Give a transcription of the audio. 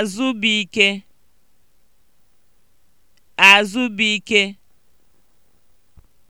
Azụbụike Azụbụike